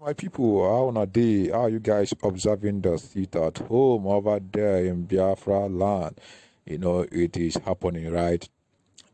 my people, how on a day are you guys observing the seat at home over there in Biafra land? You know, it is happening, right?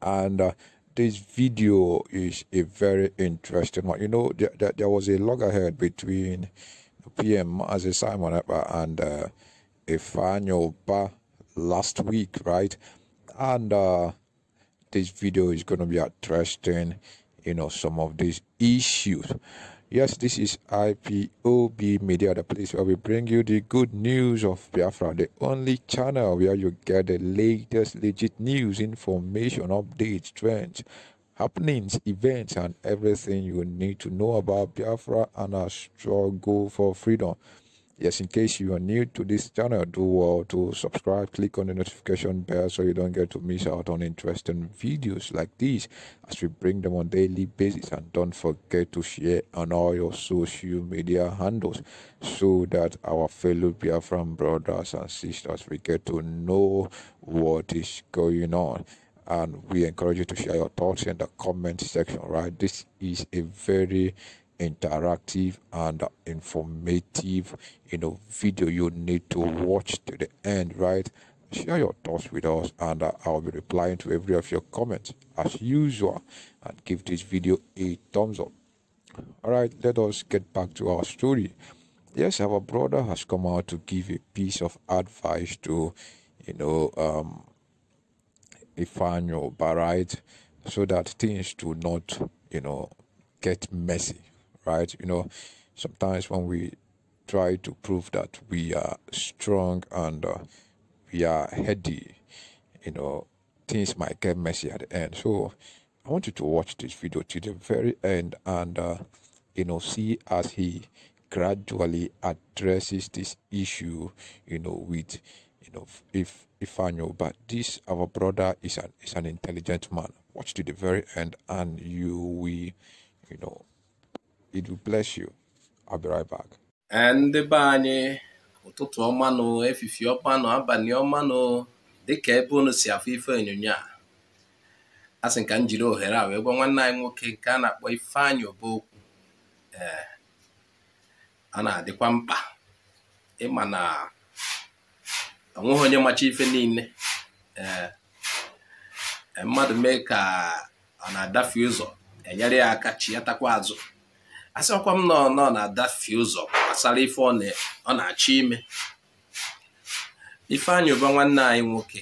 And uh, this video is a very interesting one. You know, there, there, there was a loggerhead between PM as a Simon uh, and uh, Ifanyo Ba last week, right? And uh, this video is going to be addressing, you know, some of these issues. Yes, this is IPOB Media, the place where we bring you the good news of Biafra, the only channel where you get the latest legit news, information, updates, trends, happenings, events, and everything you need to know about Biafra and our struggle for freedom yes in case you are new to this channel do well uh, to subscribe click on the notification bell so you don't get to miss out on interesting videos like these as we bring them on daily basis and don't forget to share on all your social media handles so that our fellow Biafran brothers and sisters we get to know what is going on and we encourage you to share your thoughts in the comment section right this is a very interactive and informative you know video you need to watch to the end right share your thoughts with us and uh, i'll be replying to every of your comments as usual and give this video a thumbs up all right let us get back to our story yes our brother has come out to give a piece of advice to you know um Ifanyo Barite so that things do not you know get messy right? You know, sometimes when we try to prove that we are strong and uh, we are heady, you know, things might get messy at the end. So I want you to watch this video to the very end and, uh, you know, see as he gradually addresses this issue, you know, with, you know, if if know, but this our brother is an is an intelligent man. Watch to the very end, and you will, you know, it will bless you. I'll be right back. ndị be anyị ụtụtụ ọmanụ efifie ọmanụ abalị ọmanụ dịka ebe unu si afụ ife onyonyo a asị sị ka m jiri ohere a wee gwa nwanne anyị nwoke nke a na-akpọ Ifeanyị Obookwu ee eh, a na-adịkwa mkpa ịma na onweghị onye macha ife niile ee eh, eh, mmadụ mee ka ọ na-adafe ụzọ enyere ya aka chi ya takwa azụ asịkwa m nọ nọ na adafie ụzọ gbasara ife ọ na-achọ ime Ifeanyị ụba nwanne anyị nwoke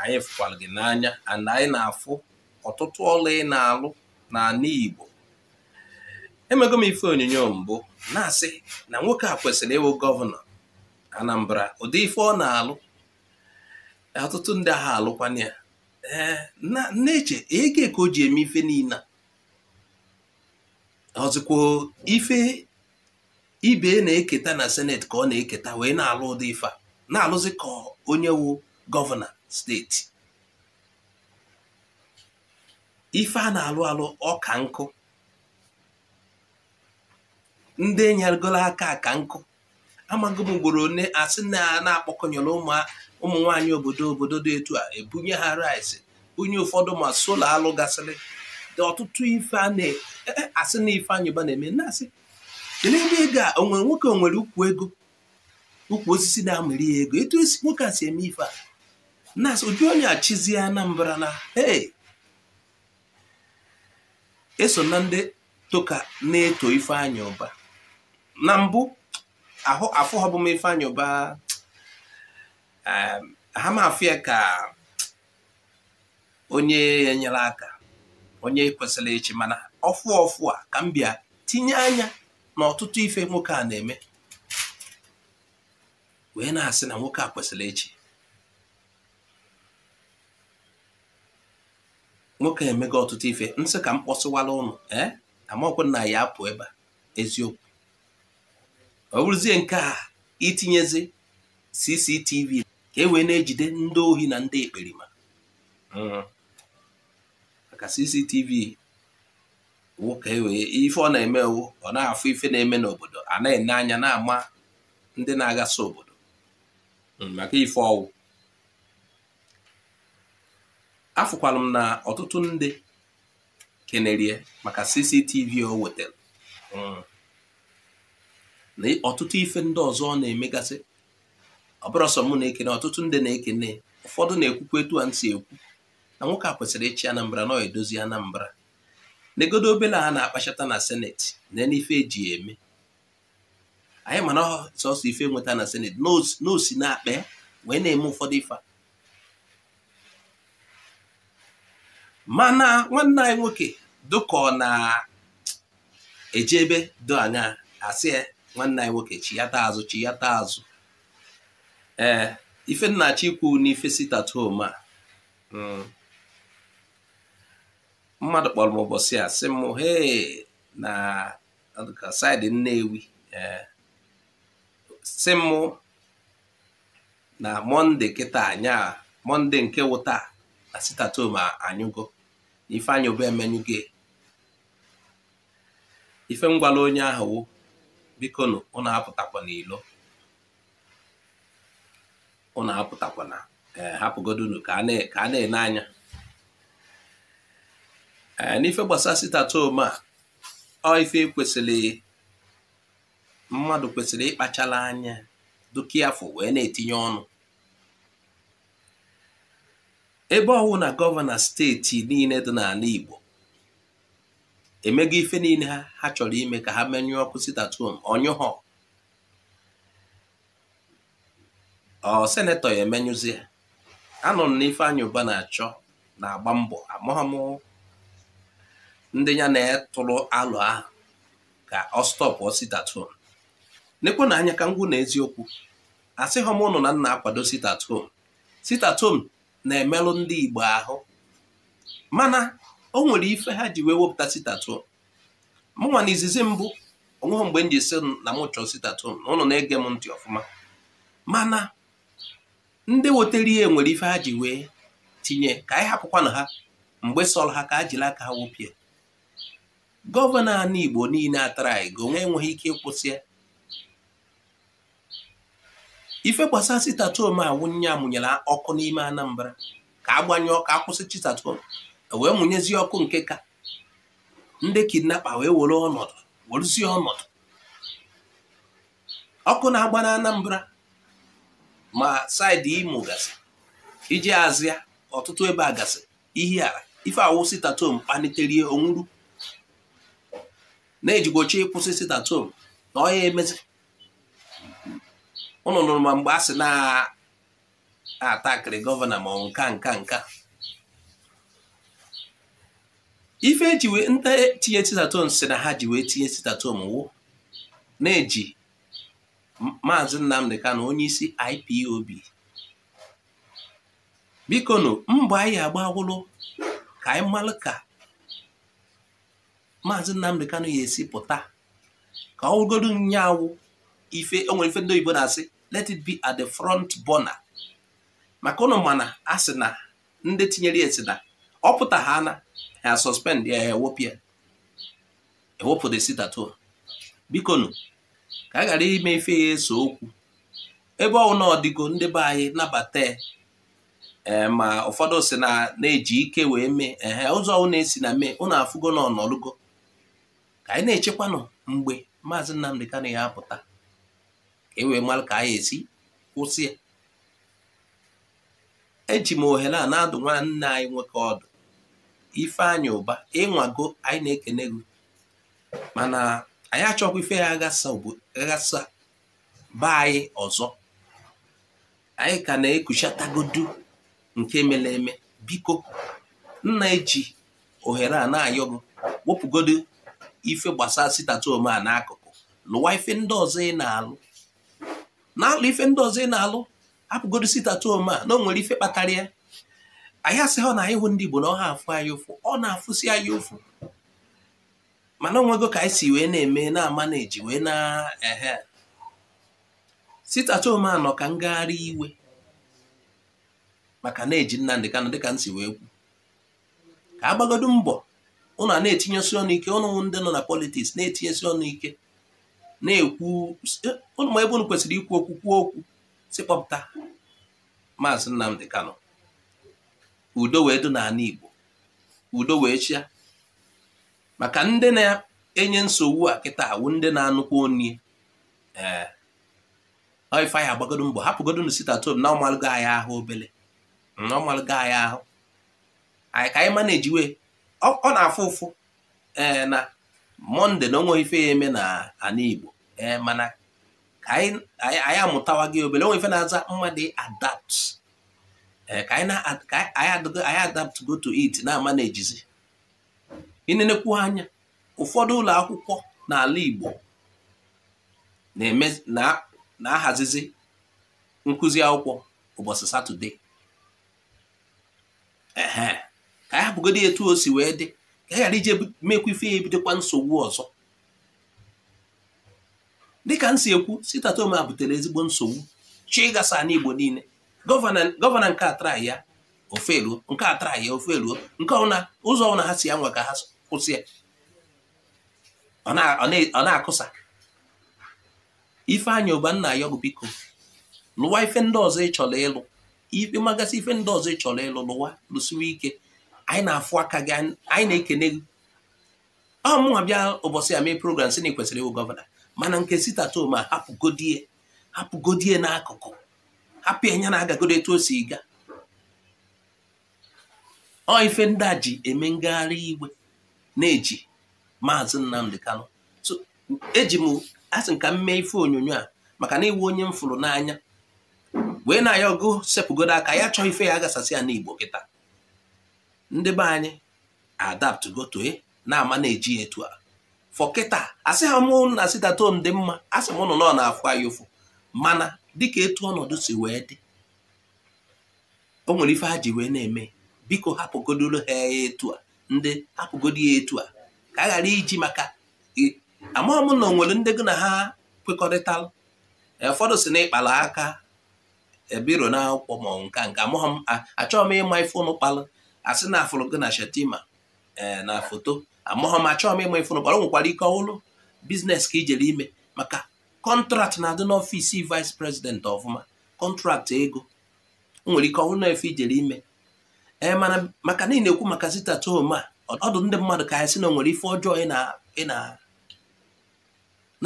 anyị fụkwara gị n'anya and anyị na-afụ ọtụtụ ọrụ ị na-alụ n'ala Igbo emego m ife onyonyo mbụ na-asị na nwoke a kwesịrị ịwụ gọvanọ Anambra ụdị ife ọ na-alụ ọtụtụ ndị agha alụkwana ya ee nna eche ege ka o ji eme ife niile ọzọkwa ife ibe na-eketa na seneti ka ọ na-eketa wee na-alụ ụdị ife a na-alụzi ka onye wu gọvanọ steeti ife a na-alụ alụ ọ ka nkụ ndị nyegoro aka aka nkụ amaghị m ugboro one asị na-akpọkọnyere ụmụ nwaanyị obodo obodo dị etu a ebunye ha rice onye ụfọdụ ma sola alụ gasịrị ọtụtụ ife a na-asị e, e, na ife Uba na-eme naasị. asị n'ebe ego a onwere nwoke nwere ukwu ego ukwu osisi na-amịrị ya ego etu nwoke a si eme ife a na ụdị onye achịzi Anambra na ee eso na ndị toka na-eto ife ụba na mbụ afọ ọbụ ife Ifeanyi ha ya ka onye ya aka onye kwesịrị ịchị mana ọfụ ọfụ a ka m bịa tinye anya na ọtụtụ ife nwoke a na-eme wee na-asị na nwoke a kwesịrị ịchị nwoke emego ọtụtụ ife nsị ka m kpọsịwala ụnụ ee amaọkwụ na ya apụ ebe a eziokwu ọ bụrụzie nke a itinyezi CCTV ka e wee na-ejide ndị ohi na ndị ekperima hmm. ka CCTV nwoke wee ife ọ na-emewu eme ọ na-afụ ife na-eme n'obodo a na-ene anya na-ama ndị na agasị obodo hmm, maka ife ọwụ afụkwalụ m na ọtụtụ ndị kenerie maka CCTV o wetara hmm. na ọtụtụ ife ndị ọzọ ọ na-emegasị ọ bụrụ sọ mụ na-ekene ọtụtụ ndị na-ekene ụfọdụ na-ekwukwa etu a nsi ekwu na nwoke a kwesịrị ịchị Anambra nọ edozi Anambra negodo obele ha na-akpachata na seneti na e eji eme anyị mana sọsọ ife nweta na seneti na osi na-akpa ya wee na-eme ụfọdụ ife mana nwanne anyị nwoke dụka na ejebe ebe do anya asị ya nwanne anyị nwoke chiyata azụ chiyata azụ ee ife nna na n'ife sit a hmm, mmadụ kpọrọ m ụbọchị a sị m he na saịdị Nnewi eh, sị m na mọnde kịta anya mọnde nke wụta na sitatom anyụgo ifeanyị obe emenyugo ife ngwala e. onye ahụ wụ biko na ụnụ apụtakwa n'ilo ụnụ apụtakwa na eh, hapụgodunu ka a na-ene anya Eh, n'ife gbasara sitatom a ọ ife kwesịrị mmadụ kwesịrị ịkpachala anya dukia afọ wee na-etinye ọnụ ebe ọwụ na gọvanọ steeti niile dị n'ala Igbo emego ife niile ha ha chọrọ ime ka ha menyụọ ọkụ sitatom ọnyụhọ ọ senetọ ya anọ m na na-achọ na-agba mbọ amụghọmụhụ ndị ya na-etụrụ alụ ahụ ka ọ stọpụ sitatom nekwe na anya ka ngwụ na eziokwu asịghọm ụnụ na nna akwado sitatom sitatom na-emelụ ndị Igbo ahụ mana o nwere ife ha ji wee wepụta sitatom mụnwa na izizi mbụ onweghị mgbe m ji si na m chọọ sitatom na ụnụ na-ege m ntị ọfụma mana ndị wetara ihe nwere ife ha ji wee tinye ka anyị hapụkwanụ ha mgbe sọrọ ha ka a jiri aka ha wepịa gọvanọ ala Igbo niile atara ego nwa enweghị ike ịkwụsị ya ife gbasara Sitatom awụnye amụnyere ọkụ n'ime Anambra ka agbanye ọkụ akwụsị Sitatom e wee mụnyezie ọkụ nke ka ndị kidnapa wee were ọnọdụ werezie ọnọdụ ọkụ na-agba na Anambra ma saịdị Imo gasị iji azịa ọtụtụ ebe a gasị ihe ala ife awụ Sitatom kpalitere onwuru na ejigbochi ịkwụsị sit at na ọ ya emezi ụnụ nụrụ ma mgbe a sị na-atakịrị gọvanọ ma ọ nka nka nka ife eji wee nta tinye si na ha ji wee tinye sitatom wụ na-eji maazị Nnamdi Kanu onye isi IPOB biko nụ mbọ anyị agbawụlụ ka anyị malụ ka maazị Nnamdi Kanu ya esi pụta ka ọ wụgodu nyaawụ ife o nwere ife ndị oyibo na-asị let it be at the front burner maka ụnụ mana a sị na ndị tinyere ya esi na ọ pụta ha na ya suspend ya ewepụ ya ewepụ the sit biko nụ ka a ghara ime ife ya eso okwu ebe ọ na ọdịgo ndị be anyị nabata eh, ma ụfọdụ si na na-eji ike wee mee ehe ụzọ na esi na mee ụnụ afụgo na ọnọlụgo ka anyị na-echekwanụ mgbe maazị Nnamdi Kanu ya apụta ka e wee mara ka anyị esi kwụsị ya eji m ohere a na-adụ nwanne anyị nwoke ọdụ Ifeanyị Ụba ịnwago anyị na-ekene gị mana anyị achọkwa ife ya aghasa baa anyị ọzọ anyị ka na-ekuchatagodu nke mere eme biko nna eji ohere a na-ayọ wepụgodo ife gbasara sitatoome a n'akụkụ lụwa ife ndị ọzọ ị na-alụ na ife ndị ọzọ ị na-alụ apụgodo sitatoome a na o nwere ife kpatara ya anyị asịghị ọ na ịhụ ndị Igbo na afụ anyị ụfụ ọ na-afụsi anyị ụfụ mana onwego ka anyị si wee na-eme na-ama na-eji wee na-ehe sitatoome a nọ ka ngagharị iwe maka na-eji Nnamdị Kanụ dịka m si wee kwu ka agbagodo mbọ ụnụ a na-etinyesi ọnụ ike ụnụ ndị nọ na politiks na-etinyesi ọnụ ike na-ekwu ụnụ e, ma ebe ụnụ kwesịrị ikwu okwu kwuo okwu sikpọpụta maazị Nnamdi Kano udo wee dị n'ala Igbo udo wee chịa maka ndị na-enye nsogbu a kịta awụ ndị na-anụkwa onye ee ife anyị agbagodo mbọ hapụgodonu Tom na ọmalụgo anyị ahụ obele na ọmalụgo anyị ahụ anyị ka anyị mana ọ na-afụ ụfụ ee eh, na mọnde na onwe ife ya eme na ala Igbo ee eh, mana ka anyị amụtawa gị obere onwe ife na-aza mmadụ adapt eh, anyị adapt go to it na-ama na ejizi ịnenekwu anya ụfọdụ ụlọ akwụkwọ n'ala Igbo na-ahazizi nkụzi akwụkwọ ụbọchị Satọde ka ya etu o si wee dị ka ya ghara ije mekwa ife ya ebidokwa nsogbu ọzọ dịka m si ekwu sitatoma butere ezigbo nsogbu chi gasa na igbo niile gọvanọ nke atara ya ofe eruo nke atara ya ofe eruo nke ọbụla ụzọ ọbụla ha si ya nwa ka ha kwụsị ya ọ na-akụsa nna ya Ayọgụ biko lụwa ife ndị ọzọ ịchọrọ ịlụ ikpe magasị ife ndị ọzọ ịchọrọ ịlụ lụwa lụsiwe ike anyị na-afụ aka gị anyị na-ekene gị ọ mụnwa bịa ụbọchị ya mee program sị na ị kwesịrị ịwụ gọvanọ mana nke sitatoma hapụgodie hapụgodie n'akụkụ hapụ ya na agagodo etu o si ga ọ ife ndị a ji eme ngagharị iwe na-eji maazị nnamdị Kanu so eji m asị ka m mee ife onyonyo a maka na iwu onye m fụrụ n'anya wee na ya ọgụ sepụgodo aka ya chọọ ife ya agasasị ya n'Igbo kịta ndị be anyị adaptgo toe eh, na-ama na-eji etu a fọkịta asị ha mụ na sitaton dị mma asị m ụnụ nọ na-afụ anyị ụfụ mana dịka etu ọnọdụ si wee dị o nwere ife a ji wee na-eme biko hapụgodoro ha ya etu a ndị hapụgodo ya etu a ka a ghara iji maka amaghị m na onwere ndị gị na ha kwekọrịtalụ ụfọdụ si na ịkpalụ aka ebiro na akwụkwọ ma nke nke amaghị m achọghị m ịma ife ụnụ kpalụ asị na afụrụ gị na Ee eh, na foto amụghọ ma achọghị m ịma ịfụrụ bara nwekwara ike ọhụrụ biznes ka ijere ime maka kọntraktị na-adị n'ọfisi vice president ọfụma kọntraktị ego nwere ike ọhụrụ na ijere ime ee eh, mana maka na na ekwu maka sitata home a ọdụ ndị mmadụ ka ya sị na nwere ife ọjọọ ị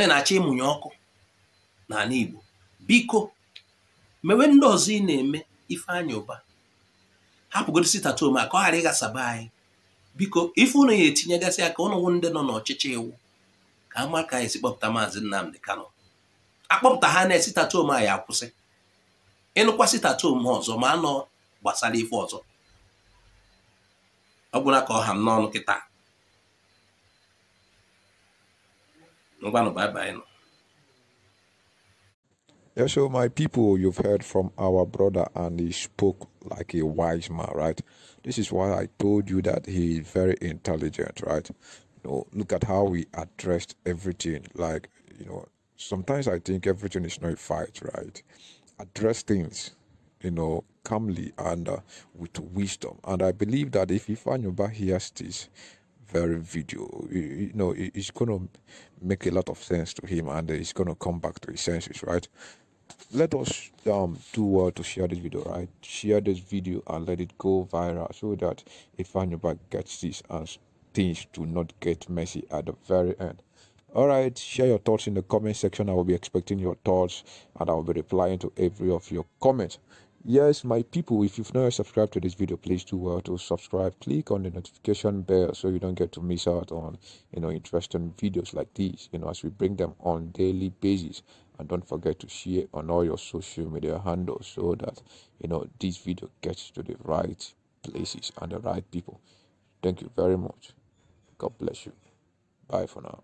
na-achọ ịmụnye ọkụ n'ala Igbo biko mewe ndị ọzọ ị na-eme Ifeanyi ụba. hapụgoro sitatom a ka ọ ghara ịghasaba anyị biko ife ụnụ ya etinyegasị ka ụnụnwụ ndị nọ n'ọchịchị iwu ka ama ka anyị si kpọpụta maazị Nnamdi Kanu akpọpụta ha na sitatom a ya akwụsị ịnụkwa sitatom ha ọzọ ma anọ gbasara ife ọzọ ọ ka ọ ha n'ọnụ kịta ngwanụ nọ Yeah, so my people, you've heard from our brother, and he spoke like a wise man, right? This is why I told you that he is very intelligent, right? You know, look at how we addressed everything. Like, you know, sometimes I think everything is not a fight, right? Address things, you know, calmly and uh, with wisdom. And I believe that if Ifanyuba hears this, very video. You, know, it's going to make a lot of sense to him and he's going to come back to his senses, right? let us um do well uh, to share this video right share this video and let it go viral so that if anybody gets this and things do not get messy at the very end all right share your thoughts in the comment section i will be expecting your thoughts and i will be replying to every of your comments yes my people if you've not subscribed to this video please do well uh, to subscribe click on the notification bell so you don't get to miss out on you know interesting videos like these you know as we bring them on daily basis and don't forget to share on all your social media handles so that you know this video gets to the right places and the right people thank you very much god bless you bye for now